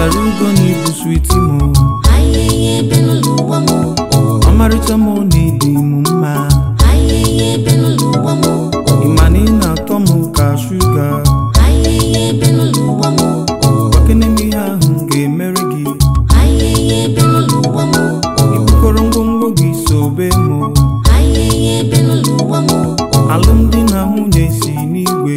pụtara ugo na ịbụ switi m ọmarịcha m na-edi m mma ịma na ị na-atọ m ka shuga gbakeneme ihe ahụ ga-emere gị ịbụkọrọ ngwongwo gị so sobe m alụmdi na nwunye si n'igwe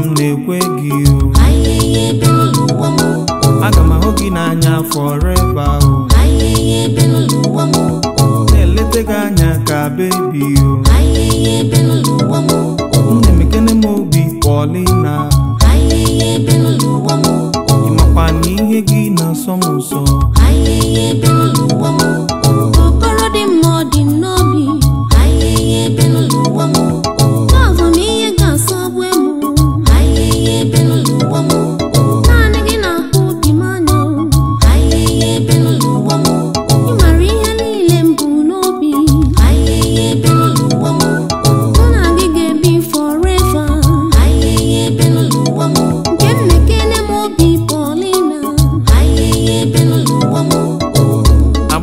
m na-ekwe gị o aga m ahụ gị n'anya ebe ahụ.